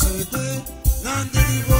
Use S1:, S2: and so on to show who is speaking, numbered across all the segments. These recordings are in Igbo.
S1: ṣe pé láńdẹ́rì wá.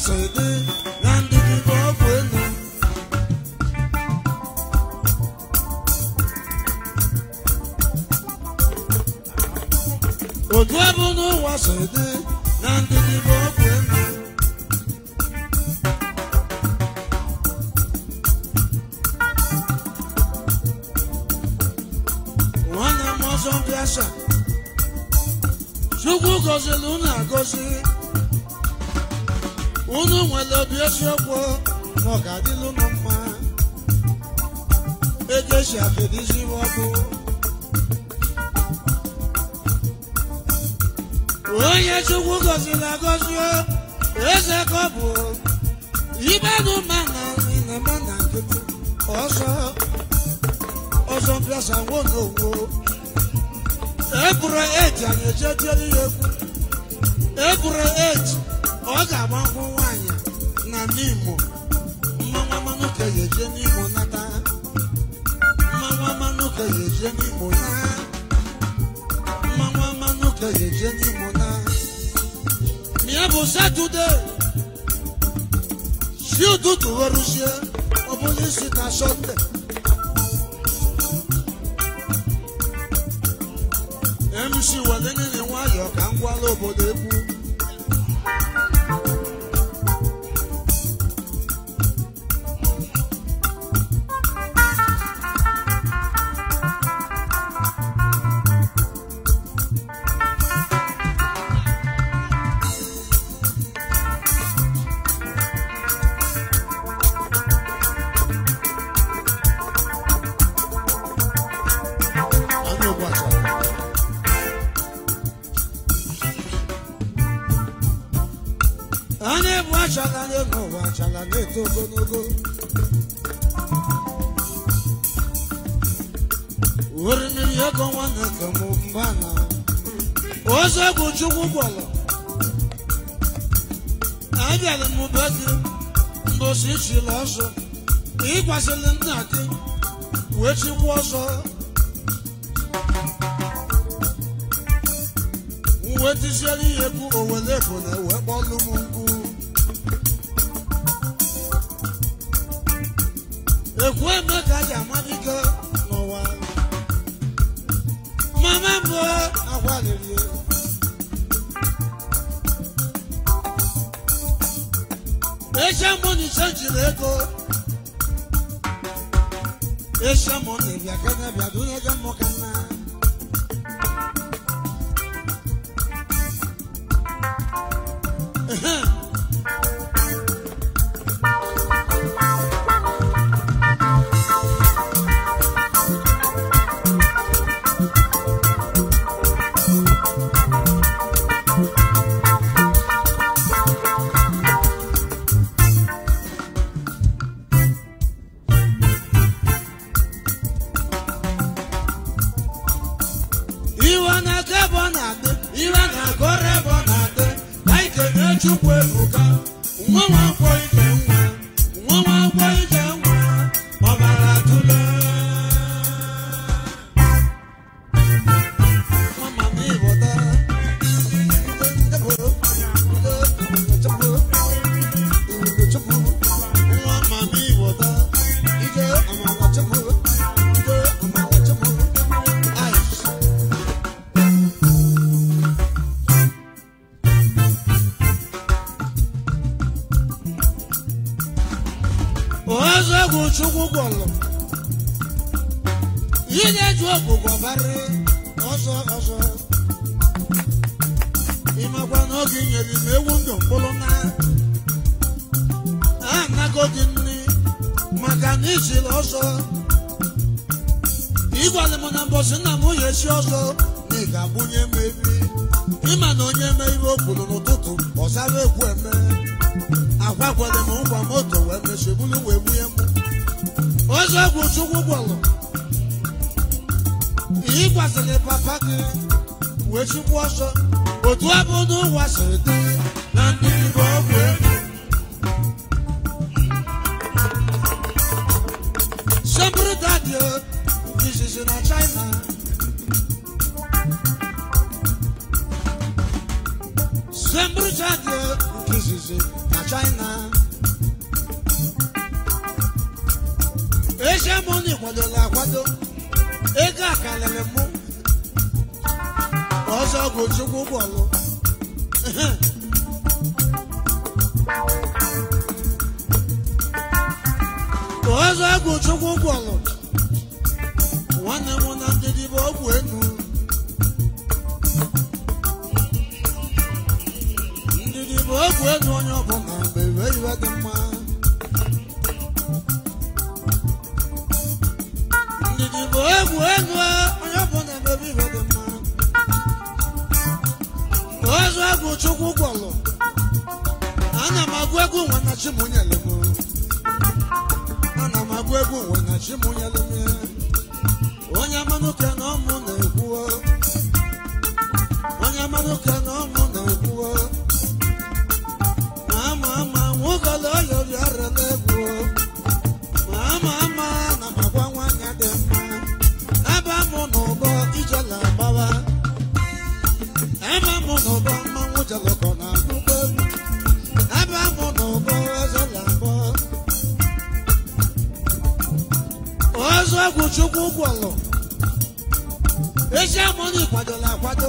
S1: 舍得。some place I won't go. Ebure age anyị ejejeli egwu. Ebure age ọ ga-agba nkwụ nwaanyị na n'Imo. Mmanwa mmanụ ka ya eje n'Imo nata. Mmanwa mmanụ ka ya eje n'Imo na. Mmanwa mmanụ ka ya eje n'Imo na. Mie bụ Satọde. Si ụtụtụ weruzie ọ bụghị isi na Sọnde. com a lobo asịlị nna was wee uh, Chukwu ebuka
S2: nwa nwa
S1: ọlụ ezi amụna ịkwadola akwado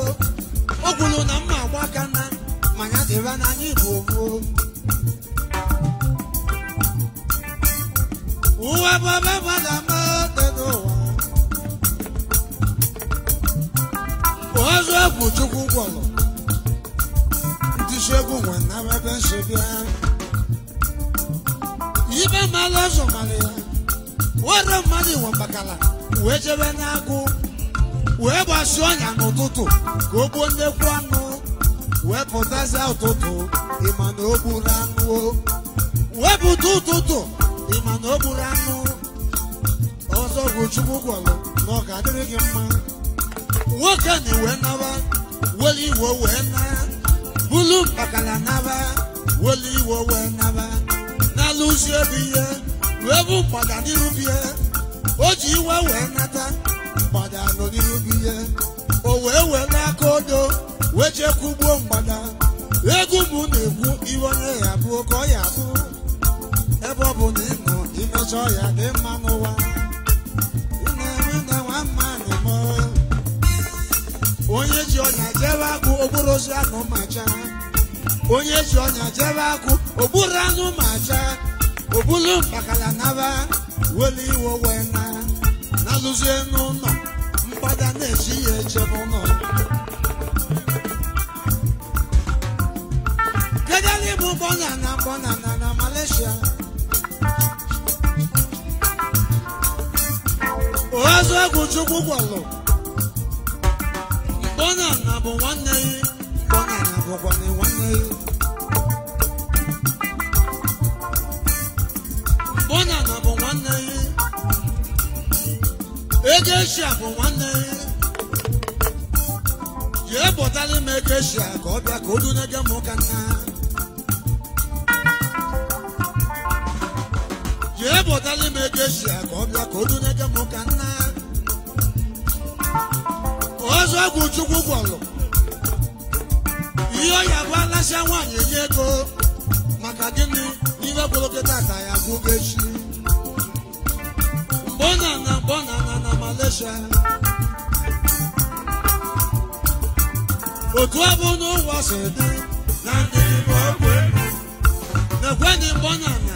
S1: ozu ọgwụ chukwu gwọrọ ihe ọ ya bụ alasịa nwaanyị enye ego maka gịnị ihe gwolokọta ka ya bụ echi mgbe ọ na mgbe ọ na na Malaysia otu ọ bụ n'ụwa si dị
S2: na ndị igbo ọgwụ ego
S1: na-ekwe ndị mgbe ọ na na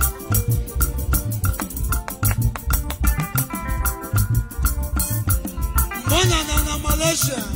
S1: generation.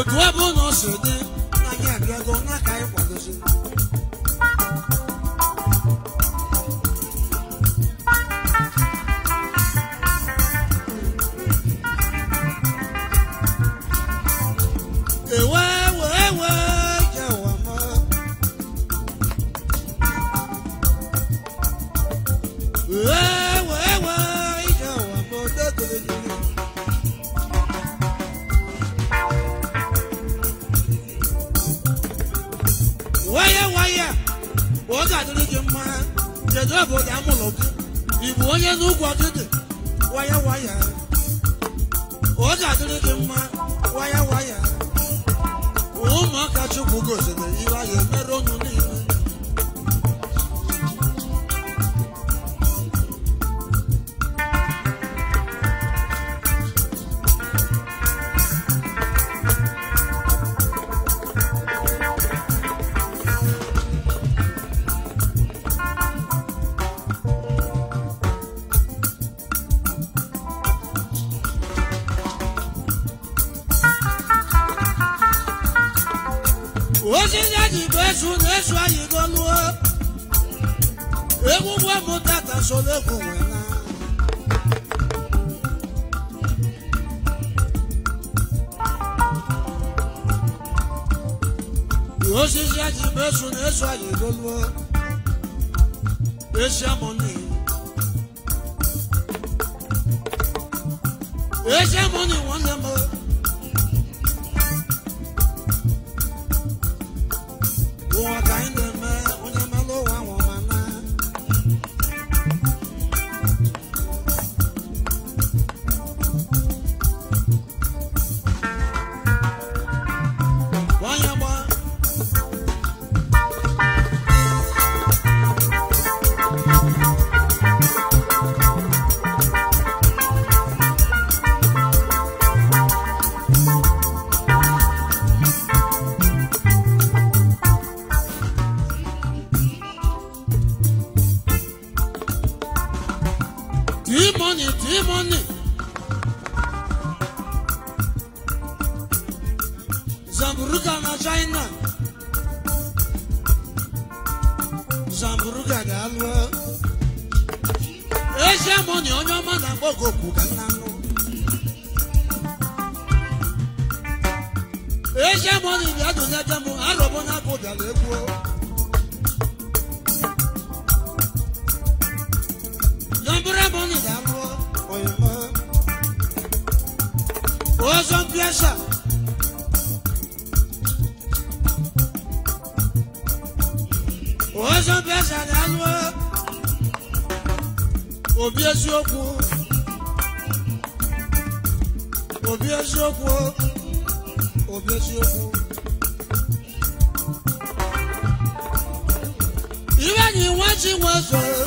S1: otu ebe ụnọ paso de Zamburuka na China Zamburuka ga-alụ Eze amoni onye ọma na-akpọ gị ka nna nụ Eze amoni dị adụ n'ebe m arọbụ na-abụ dara egwu Zamburu amoni ga-alụ oyema ọzọ mpiasa ọchara anyụ obi eziokwu obi eziokwu obi eziokwu iwe anyị nwa ji nwa zoro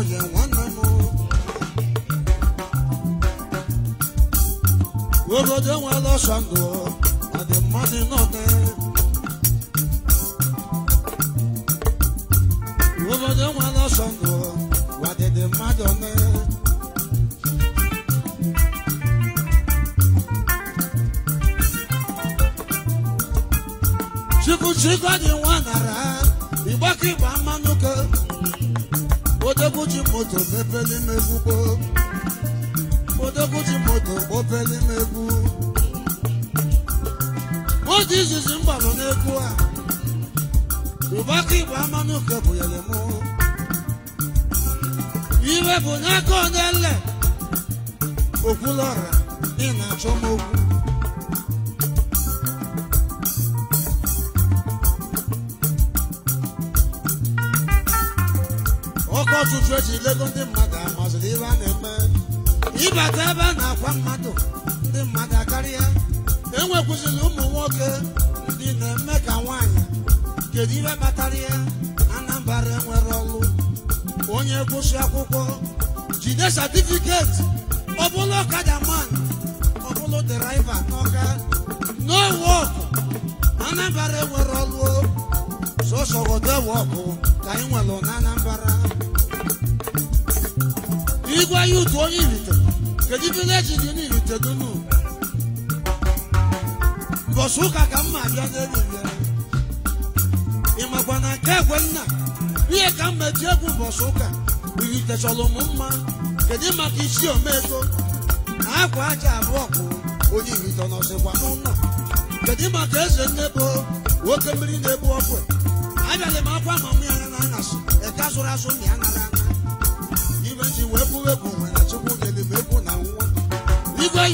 S1: onye nwanne obodo enwela ọsọ ndụ na dị mmadụ nọne obodo ọsọ ndụ chukwu chukwu dị nwa nara ịgbakọ ịgba mmanụ ke Odoguchi moto pepeli megwu gboo Odoguchi moto popeli megwu oge izizi m gbalụ n'egwu a ụbaka igbo amanụ nke bụnyere m iwe bụ n'aka onye nle okwulọra ị na-achọ m asụsụ eji lego ndị mmadụ amazụrụ ihe a na-eme ịbata ebe a na-akwa mmadụ ndị mmadụ akarịa enwekwụziri ụmụ nwoke ndị na-eme ka nwaanyị kedu ihe kpatara ya Anambra enwere ọlụ onye gụsị akwụkwọ jide satifiketi ọbụla ọkada man ọbụla deraiva n'ọka no wọk Anambra enwere ọlụ sọsọ ọdụ ewe ọkụ ka anyị nwere na kedu igwe ahịa utu onye iritere kedu vileji dị n'irite dunu mbọsị ụka ka mma abịa n'eriri ị makwa na nke egwe nna ihe ka mma eji egwu mbọsị ụka irite chọrọ m mma kedu maka isi omego na akwa aja abụọ bụ onye irite nọsịkwa n'ụlọ kedu maka eze nnebo nwoke mmiri na-ebu ọkụ abịala m akwa ma mụ ya na anyasị eke azụrụ azụ ya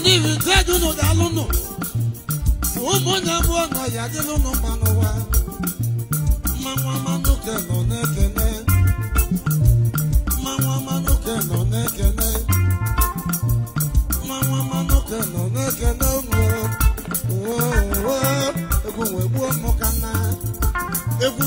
S1: ndị ugodi unu daalụ nụ ụmụnne mụọ na ya dịlụ n'ụnụ mma n'ụwa mmanwa manụke nọ na-ekene mmanwa ma nọ na-ekene mmanwa manụke nọ na-ekene ụmụ egwu wee gbuo mụ ka na egwu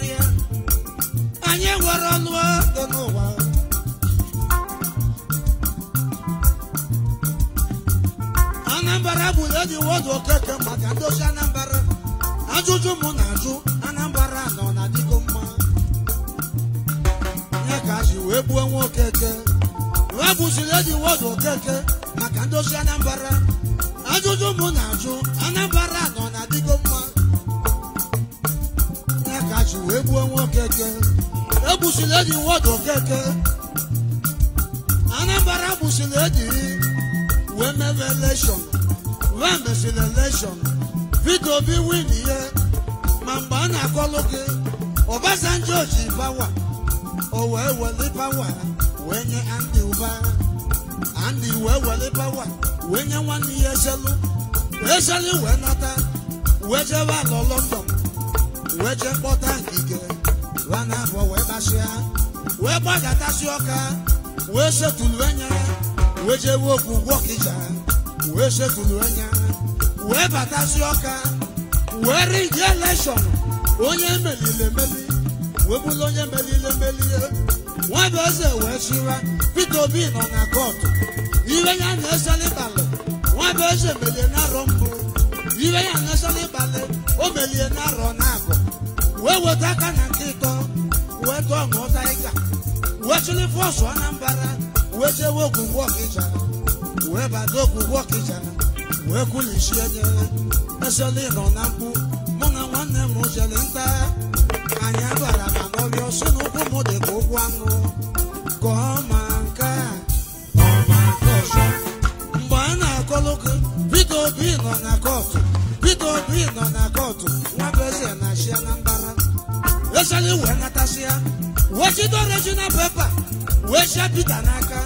S1: está ọka were ije elekshọn onye meliri emeli webụla onye meliri emeli nwada eze wee chịra pete Obi nọ na kọtụ iwe ya na-esoli balị nwada eze melie n'arọ mbụ iwe ya na-esoli balị o melie n'arọ na-abụ wee weta aka na nke ịtọ wee tụọ ṅụọta ịga wee chịrị fọsụ Anambra wee jewe ogwugwu ọkịja wee bata ogwugwu ọkịja wee kwulichie nye mesịla ịrọ na mkpu mụ na nwanne m jere nta anyị bara na n'ọbịa ọsọ na ụkwụ dị ka ụkwụ anụ ka ọ ma nke a ọma nke ọzọ mgbe a na-akọlụ gị Peter Obi nọ na kọtụ Peter Obi nọ na kọtụ nwa bụ na-achịa na mbara esala wee natasịa wee chido regional pepa wee chịa Peter n'aka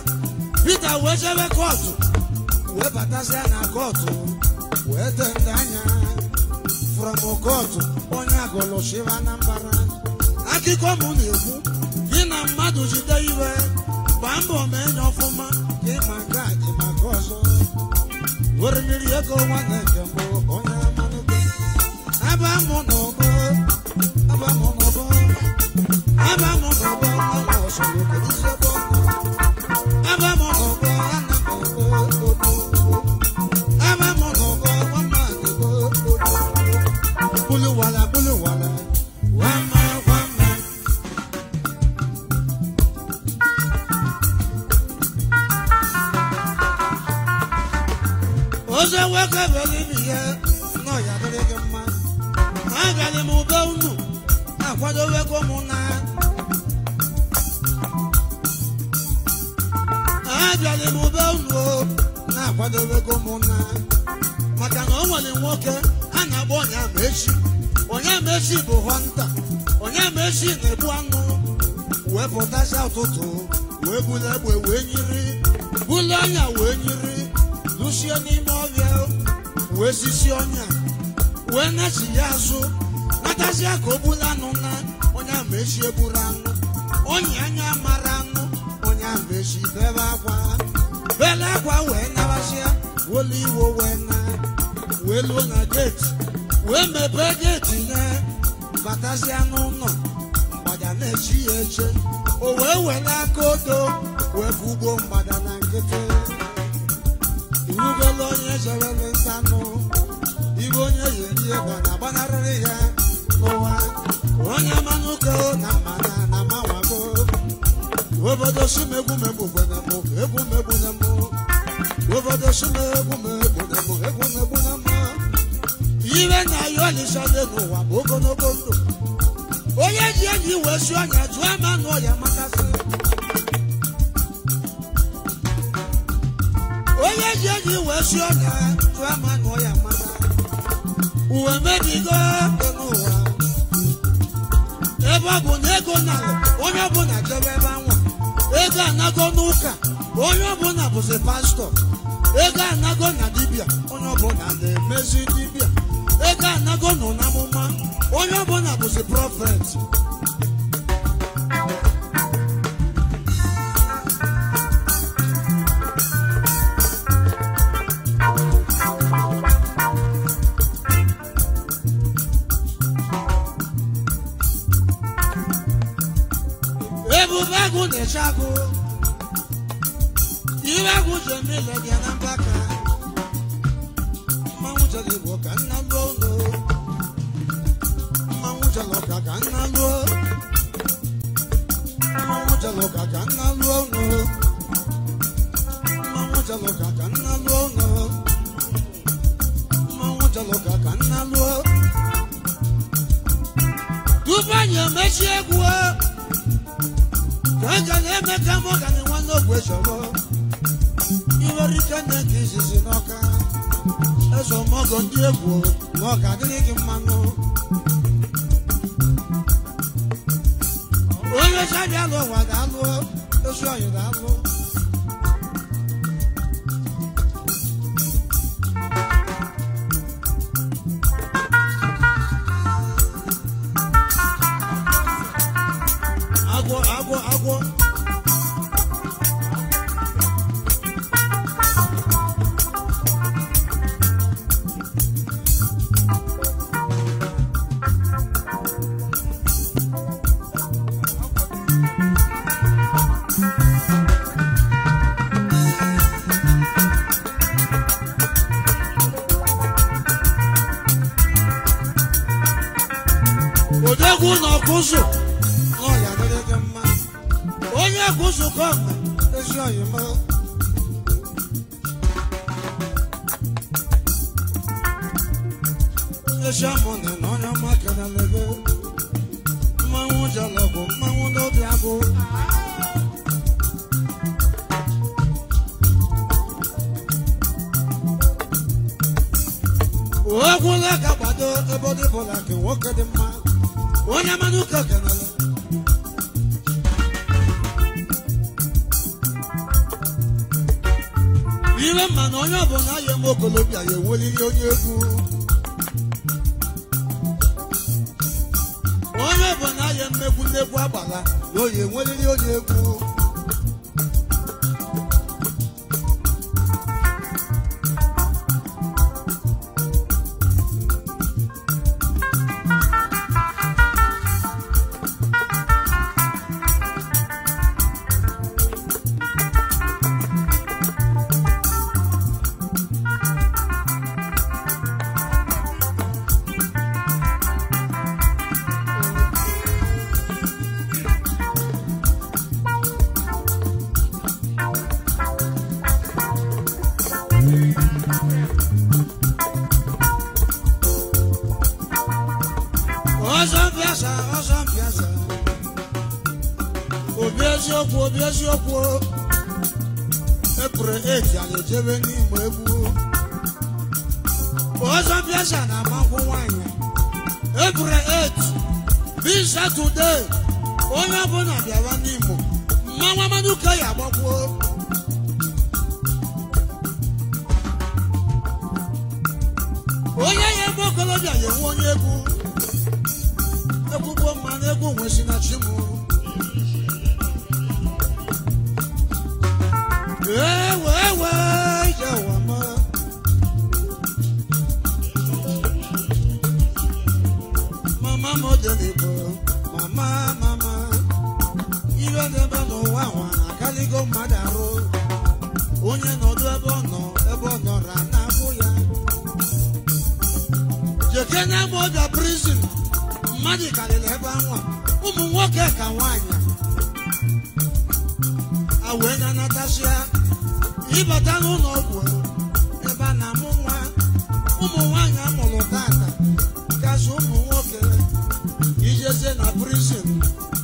S1: Peter wee chebe kọtụ wee batasịa na kọtụ ede ndị anya onye agụlụ shiva na mbara akụkọ mụ na-ekwu gị na mmadụ jide iwe gbaa mbọ na enye ọfụma gị ma nke a ọzọ mmiri ego nke mbụ onye obodo simegwu megbu na mụ egwu megbu na mụ obodo simegwu na mụ egwu na mụ ire na ya ọlịsa dị n'ụwa bụ ogologo ndụ onye ji eji iwe si ọnya jụọ ama na ọya makasị onye ji eji iwe si ọnya jụọ ama na ọya maka uwe mebigo dị n'ụwa ebe ọ bụ na ego na onye ọbụla jebe ebe anwa ego anago n'ụka onye ọbụla bụzi pastọ ego anago na dibịa onye ọbụla na-emezi dibịa ego anago nọ n'amụma onye ọbụla bụzi prọfet lechambone n'ọnya bụla nwoke dị mma onye mmanụ mma na onye ọbụla ya okolobịa ya eweliri onye egwu egwu negwu agbala na onye nweriri onye egwu seven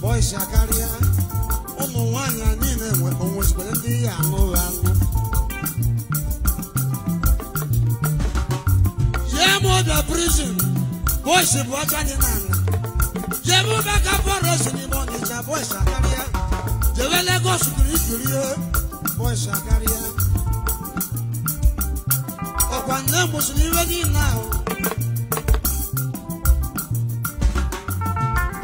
S1: bọyịsha karịa ụmụ nwanyị niile onwezikwere ndị ya ọbịa bụ ọcha ala jee m ụba ka bọrọsi n'ime ọnịcha bọyịsha karịa ọkwa nne mụsịrị iwe niile ahụ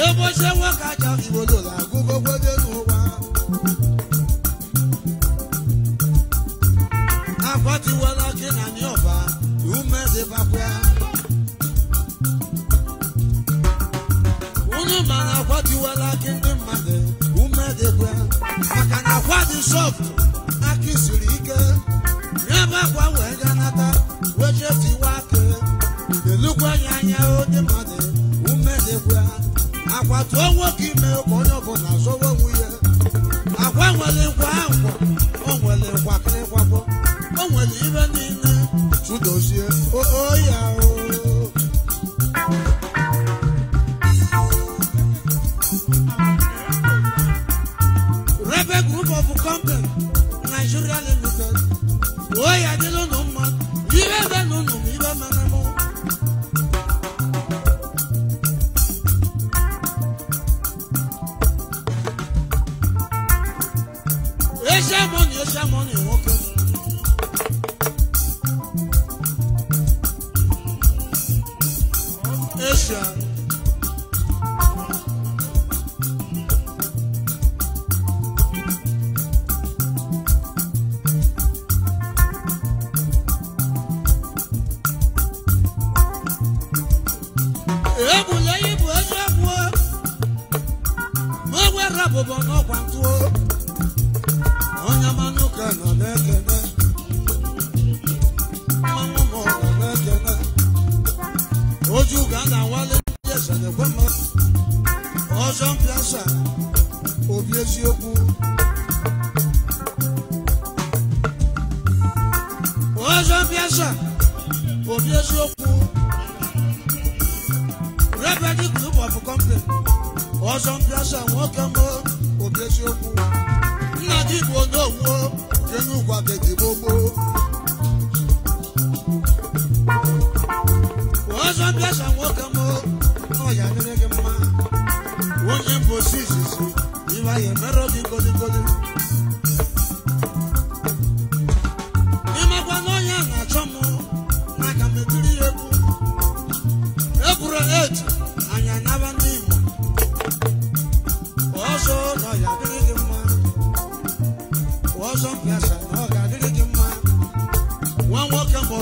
S1: Ebo ṣe wọ́n kájà ìwòlò wa. Àpótíwọlá kí nà ní ọ̀bà, ìwú mẹ́sẹ̀ bá pẹ́. Wúnú màrà àpótíwọlá kí ní mmadụ, ìwú mẹ́sẹ̀ pẹ́. ike. Nyẹ́ kwa tó am kiri.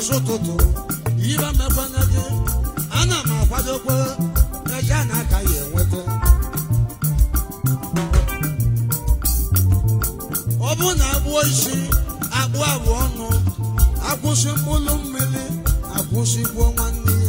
S1: ọzọ ụtụtụ ibe mekwanye gị ana m akwadokwa ego a na-aka ya enweta ọ bụrụ na agbụọ isi akpụ abụọ ọnụ akwụsị mkpụrụ mmiri akwụsị gbuo nwanne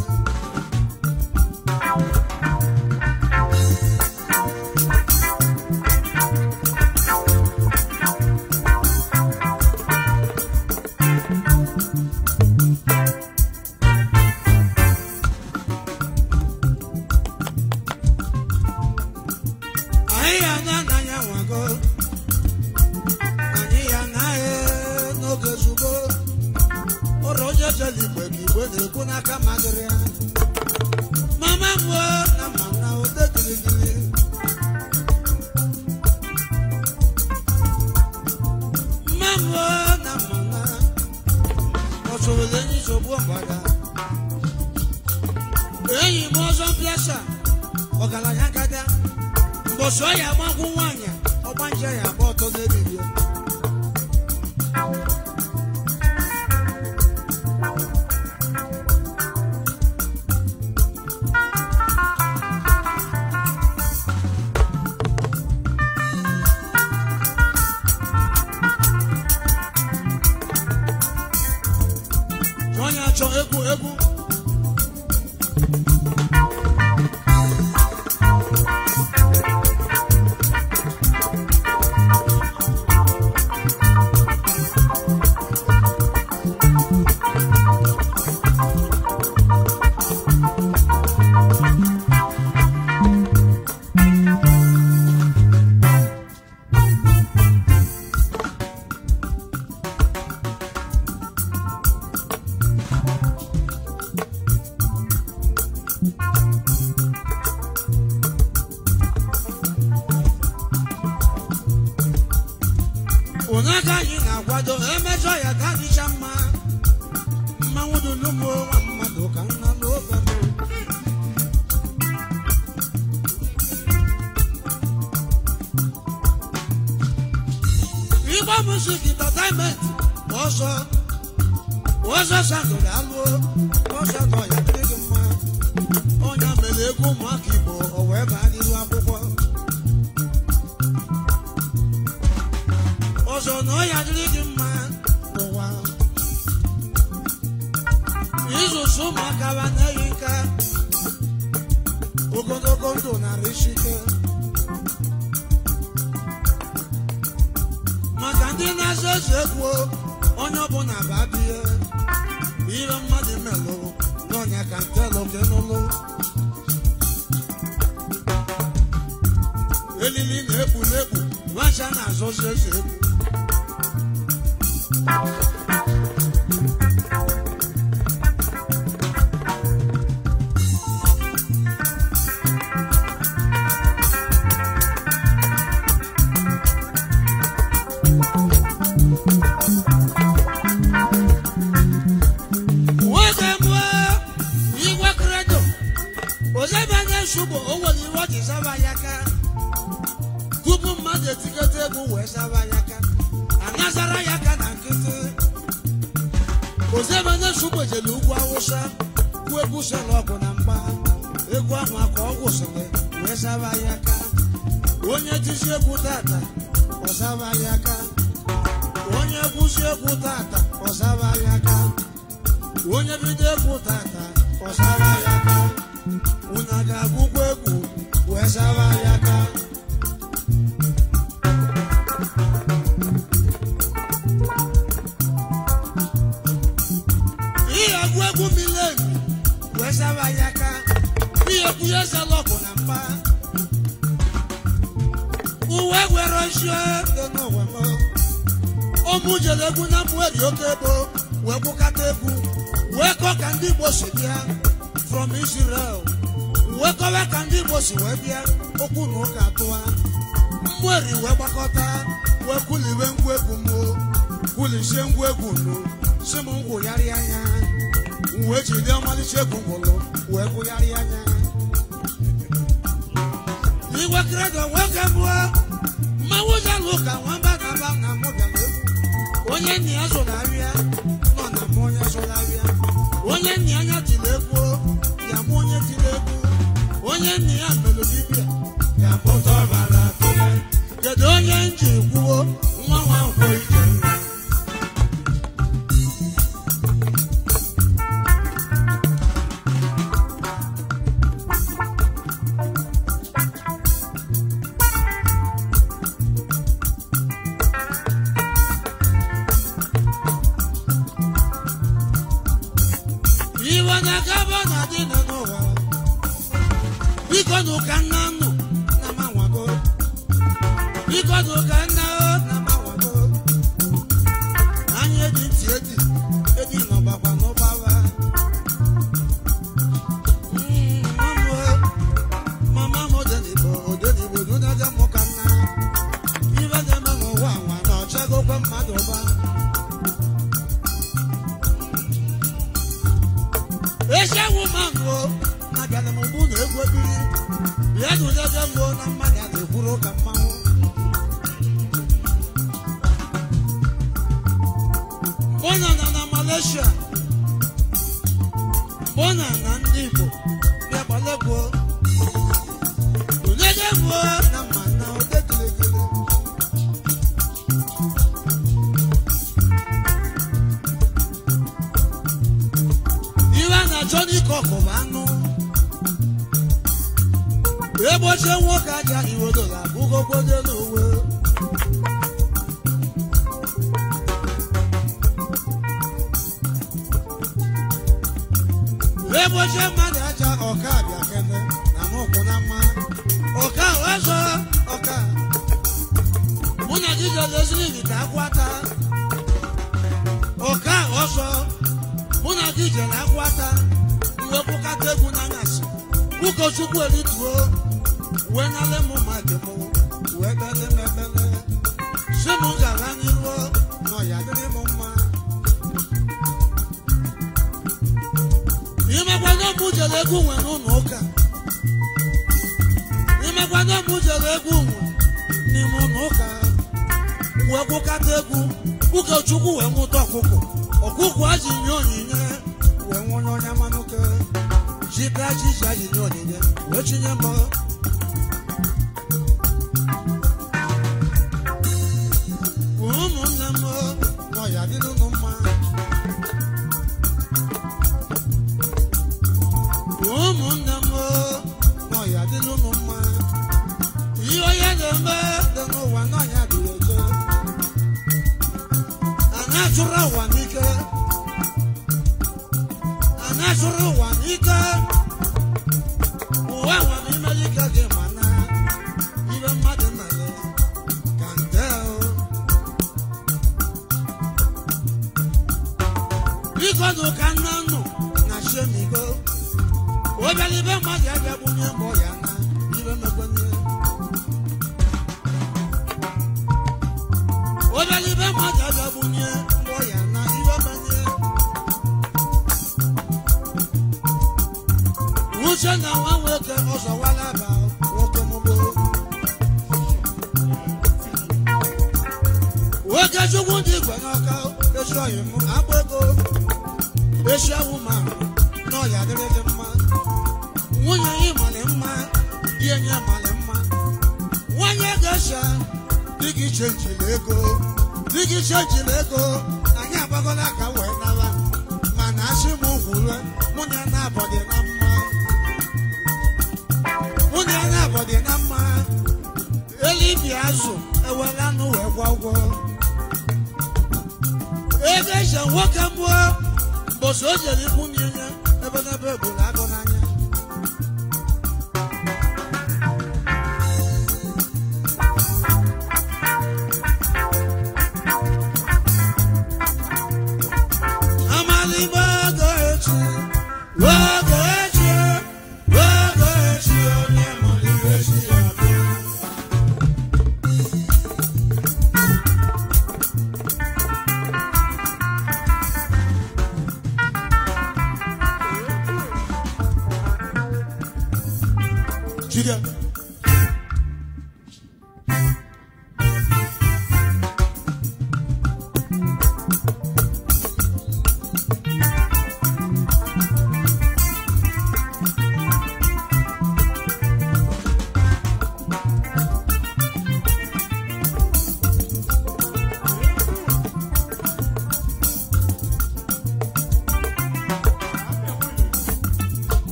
S1: chega uma que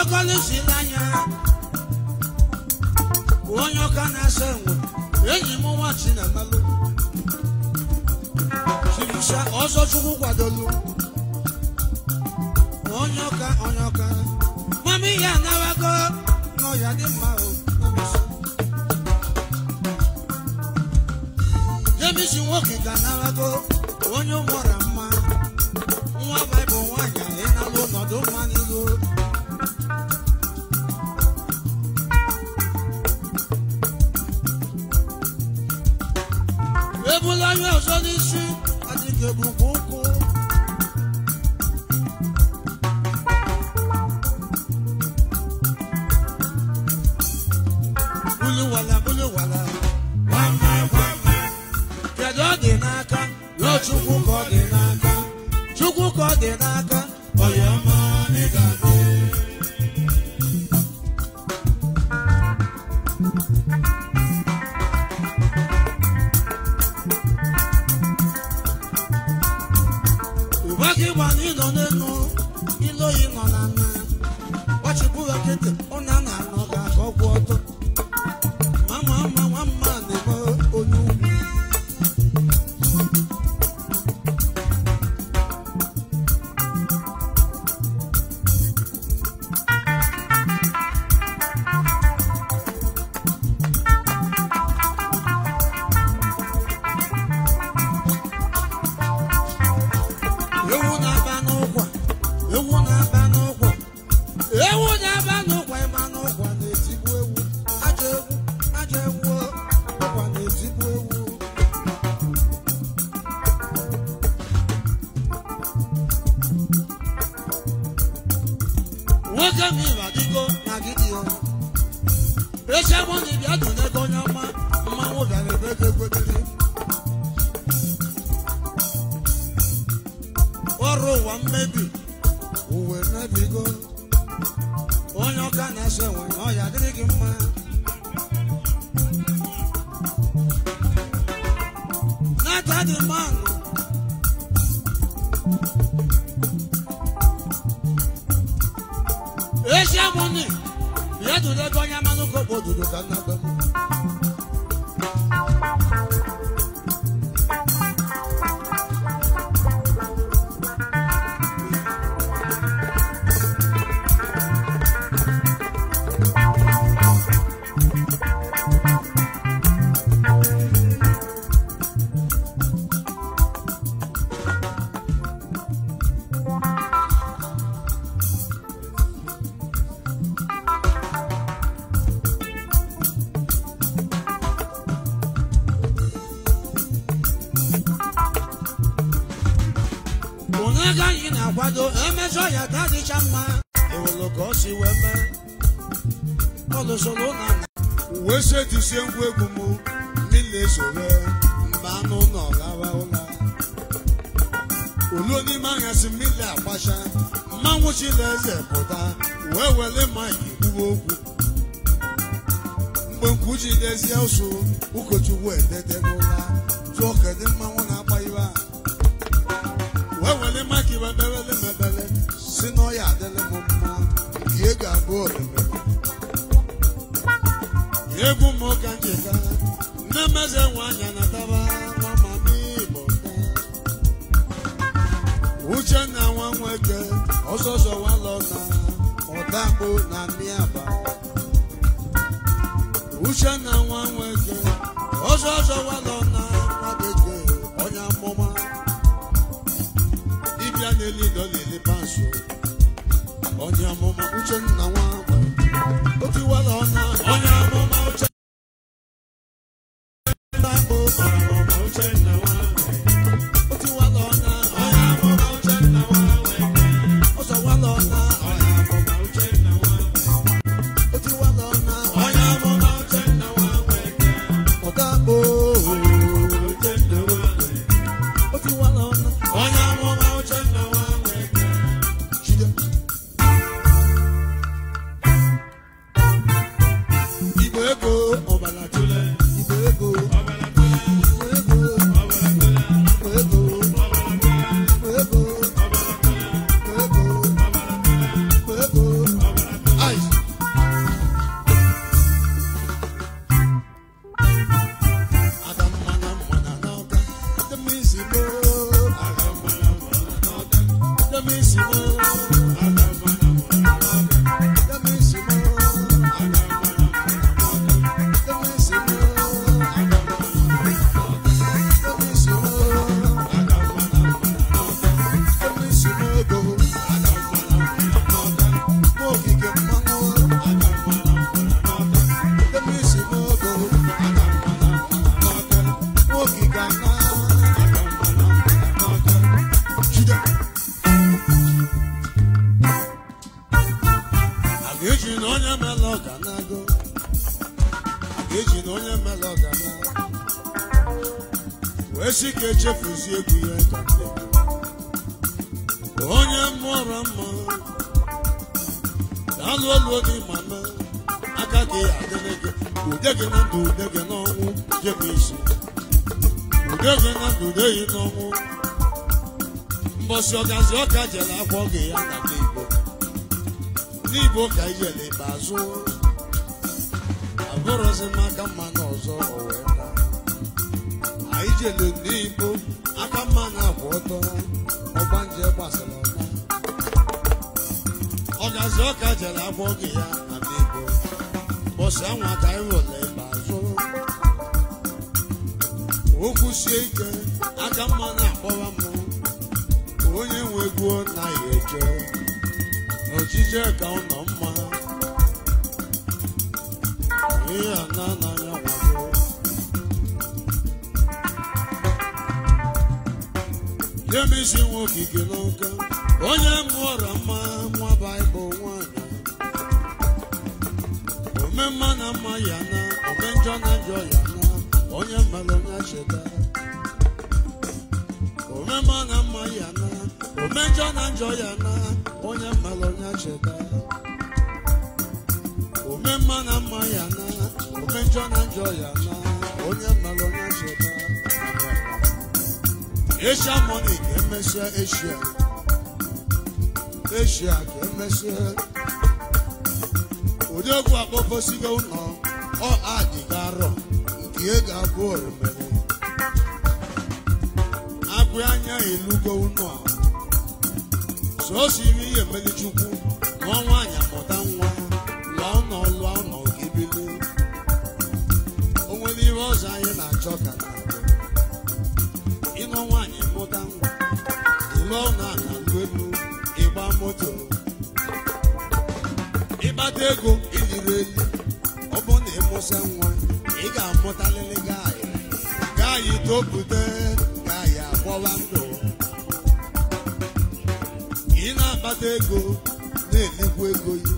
S1: okokolo si anya, onye ọka na-asa enwe enyi m nwa chinamalụ chibisa ọzọ chukwu kwadoro, onye ọka onye ọka ya anawago nọ dị mma o jemisi nwoke ga anawago onye ụmụra After the mango. Asia money. Bia tu de gonya manu ko bodu do kana bemu. ezi ọhịa ka adịcha mma ewelu ka ọ si wee mee ọlụsoro ụlọ wee si ngwa egwu m ndị na-esore mba anụ ụlọ lawa ụla oluo n'ime anya si mmiri agbacha mmanwụ chileze pụta wee were maịkị kwuo okwu mgbe nkwuchi dezie ụsụ ụkọchukwu ededego ihe ga-abụ oroma akpụ anya elugo unu a so siri ihe mmeri chukwu na ọnwa anya mụta nwa lụọ nọ lụọ nọ gebili o nwere ihe ọzọ anyị na-achọ ka na-abịa. ịnọ nwaanyị mụta nwa ịlụọ na aka elu ịgba moto ịkpata ego iliri elu ọ bụ na ịmụsa nwa ị ga-amụtalịrị anyị gaayị ka anyị agbọwa ndụ ị na-akpata ego na-enekwu ego ya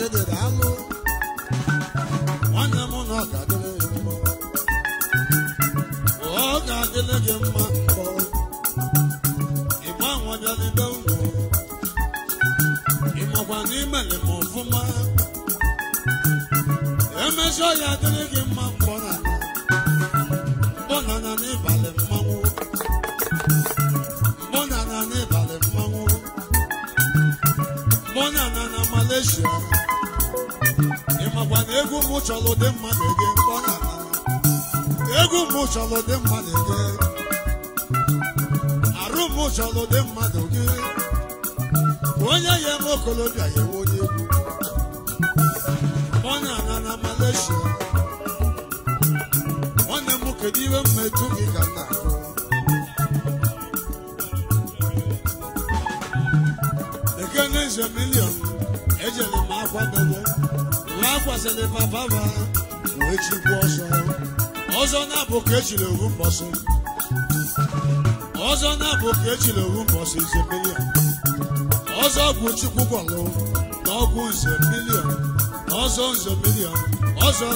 S1: jedere alụ nwanne m na ọ ga-adịrị gị mma ọ ga-adịrị gị ọfụma ya gị mụ chọrọ dị mma gị ege mkpọ na egwu mụ chọrọ dị mma gị ege arụ mụ chọrọ dị mmadụ gị onye ya eme okolobịa ya ewe onye egwu onye ana na Malaysia nwanne m kedu iwe mmeju gị ka tụkwasịrị papa ma wee chikwu ọsọ ọzọ na-abụ ka ejiri owu mbọsị ọzọ na-abụ ka ejiri owu mbọsị ize milion ọzọ bụ chukwu gwọlụ na ọgwụ nze milion ọzọ nze milion ọzọ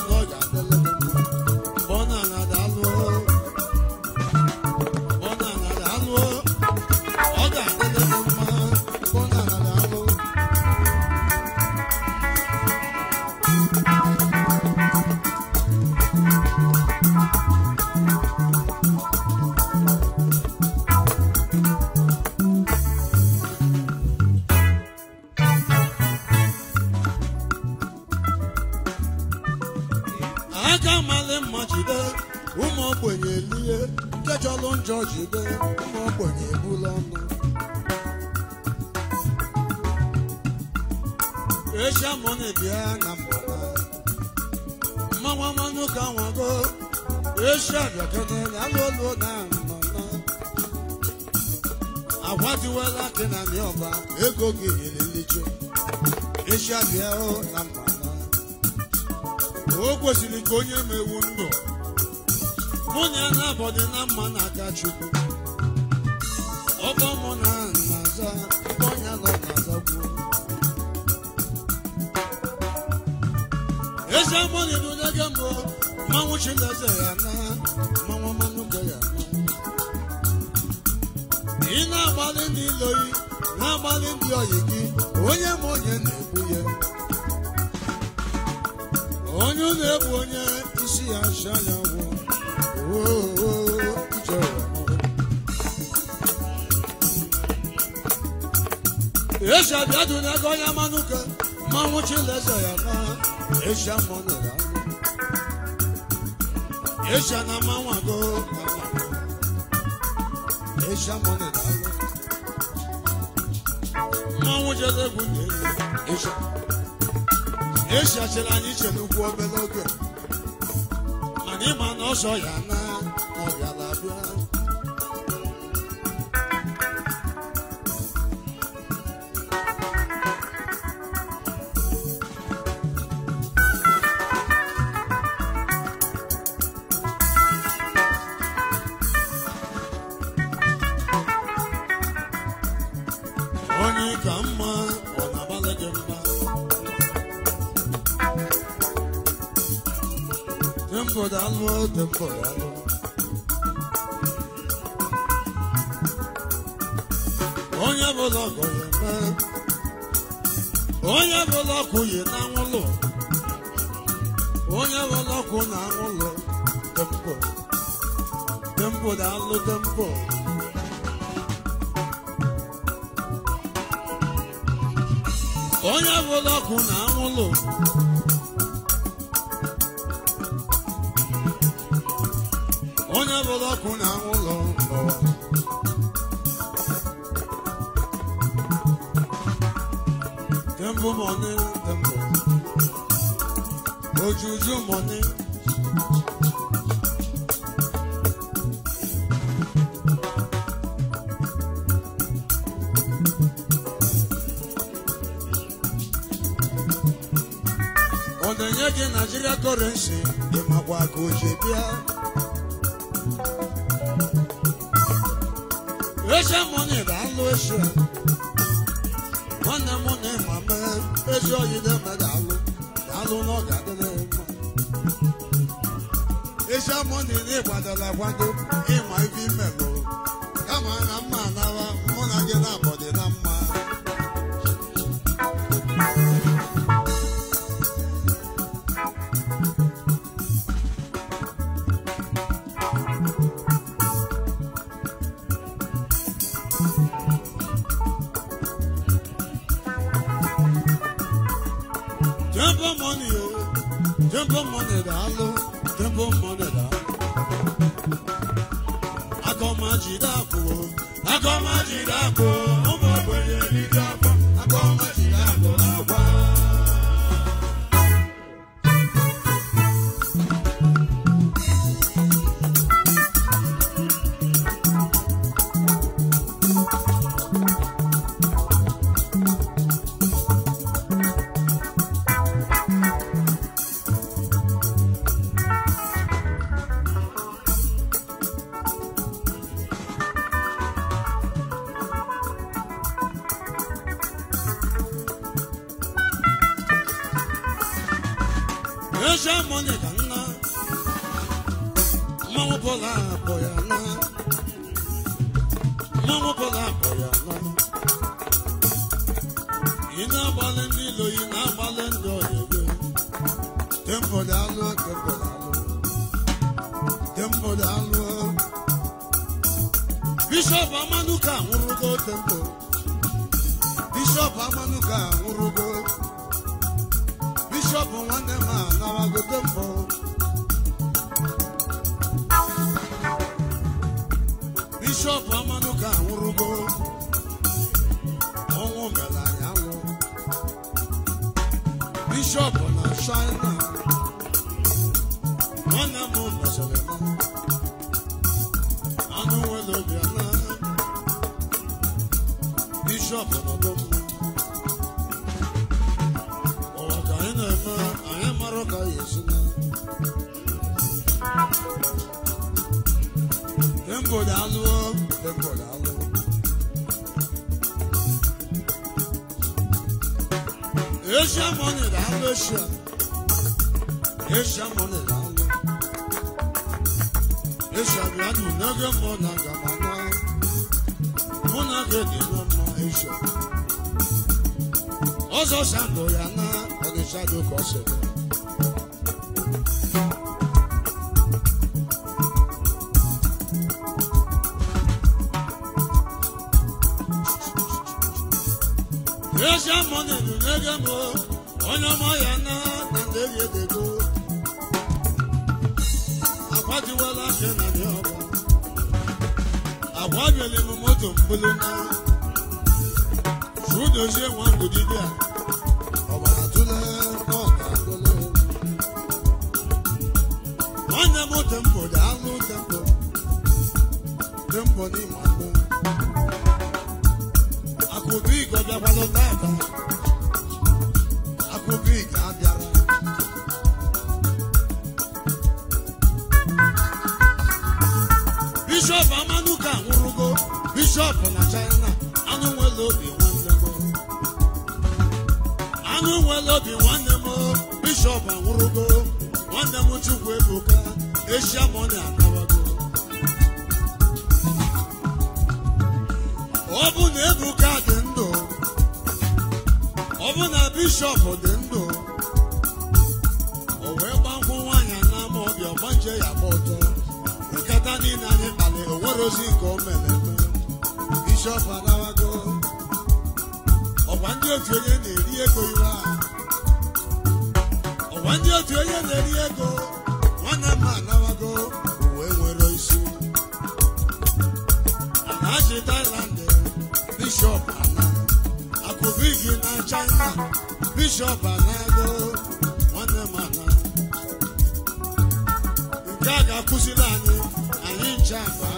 S1: chukwu ọbọ mụ na nnaza onye nọ nnaza gwuo eze mụ na gị mbụ mmanwụ chileze ya na mmanwụ mmanụ gị ya na ị na-agbalị ndị iloyi na-agbalị ndị ọyị gị onye m onye na-egbu ya onye na-egbu onye isi ya acha ya gwụ esi abịadụna ego onye manụ ka mmanwụ chileze ya n'ọha eshia mmanụ ya eshia na mmanwụ agụ eshia mmanụ ya mmanwụ jeze egwu na elu eshia eshia chịrị anyị iche n'ugwu obere oge mana ịma na ọsọ ya na no onye bụ ọgọ onye bụla ọkụ yi na anwụlụ onye bụla ọkụ na tempo tempo da alụ tempo onye bụla na anwụlụ na ụlọ Temple mọni, temple. Ojuju money. Ọ na-enye gị Naijiria kọrensi, ị makwa ka o ji bịa. Asian money, I'm no sure. One money, my man, it's all you don't know. I don't know that the e Asian money, they want to like one to in my female. Come on, I'm man, I'm gonna get up. alụ debo mọdịda agọmajide akpụ agọmajide akpụ Brady Mama yana Ọzọ Sambo ya na Ọdịshadụ Kọsịrị. Asia mọnị nụ n'ebe mụ, onye ọmọ ya na na ndị eri edego. Akwadiwala afịa na ndị agbanwere m moto mbulu udozie nwa mbụ dibịa ọbara tụle nwanne m tempo dị anụ tempo tempo n'ime akụ akụ bụ igobiakwalụ tata Asia money akawago ọ bụ na Ebuka dị ndụ ọ bụ na bishọp dị ndụ o wee gbankwụ nwaanyị n'ama ọbịa ọgbanje ya gba ọtọ nkata niile anyị kpali o nwere ozi nke o mere eme bishọp anawago ọgwa ndị otu onye na ndị otu onye na-eri ego kú sí láàánú